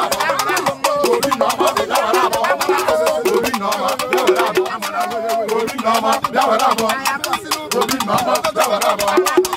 Obi nama, bia wera bo. Obi nama, bia wera bo.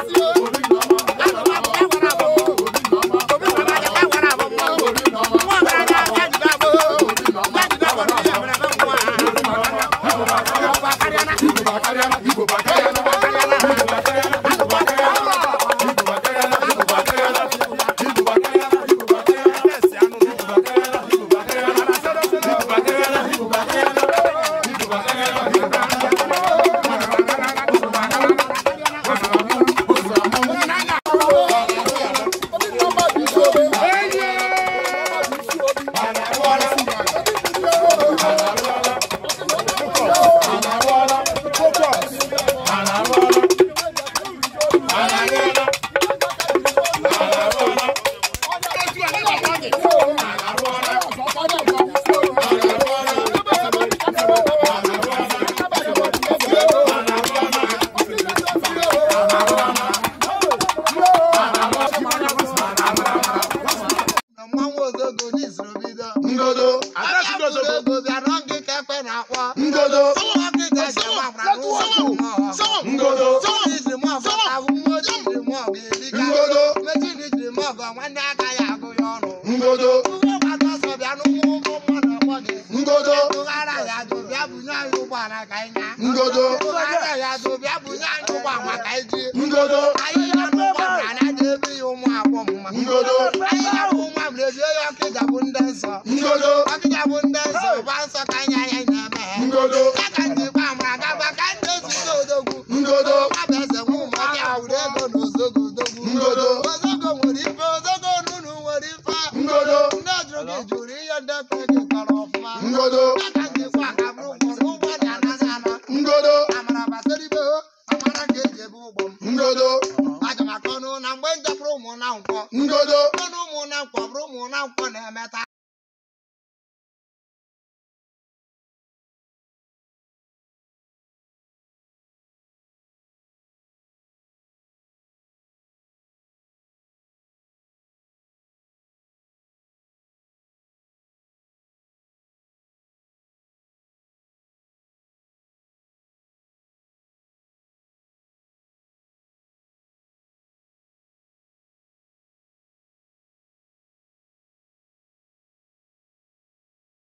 ego bịara gị ekpe na-akpọ ngodo gị ka eji agbara ngodo ijiri mọbụ abụ nwa ojii jiri mọbụ erika ngodo mejiri jiri mọbụ nwanne aka ya agụ ya ọnụ ngodo ụgbọgbata ọsọ bịa n'ụkwụ ụgbọ mmadụ ebe ya m lezie ya akịja bụ ndị nsọ akịja bụ ndị nsọ ụba nsọ ka anya ya na-eme ha ka ndị gba ma agaba ka ndị ezute odogwu nwabụ eze nwa ụmụaka awụrụ ego na ozogo odogwu ozogo nwere ife ozogo onunu nwere ife ndị jụrụ gị jụrụ ihe ndị pe gị kọrọ ọfụma aka ndị gwa ka bụrụ ụgwọ ụgwọ dị anaghị ana amara gbasara ibe amara ka eji ebe ụgbọ m aga m akọnụ na mgbe m ụmụ na nkwọ 我来买单。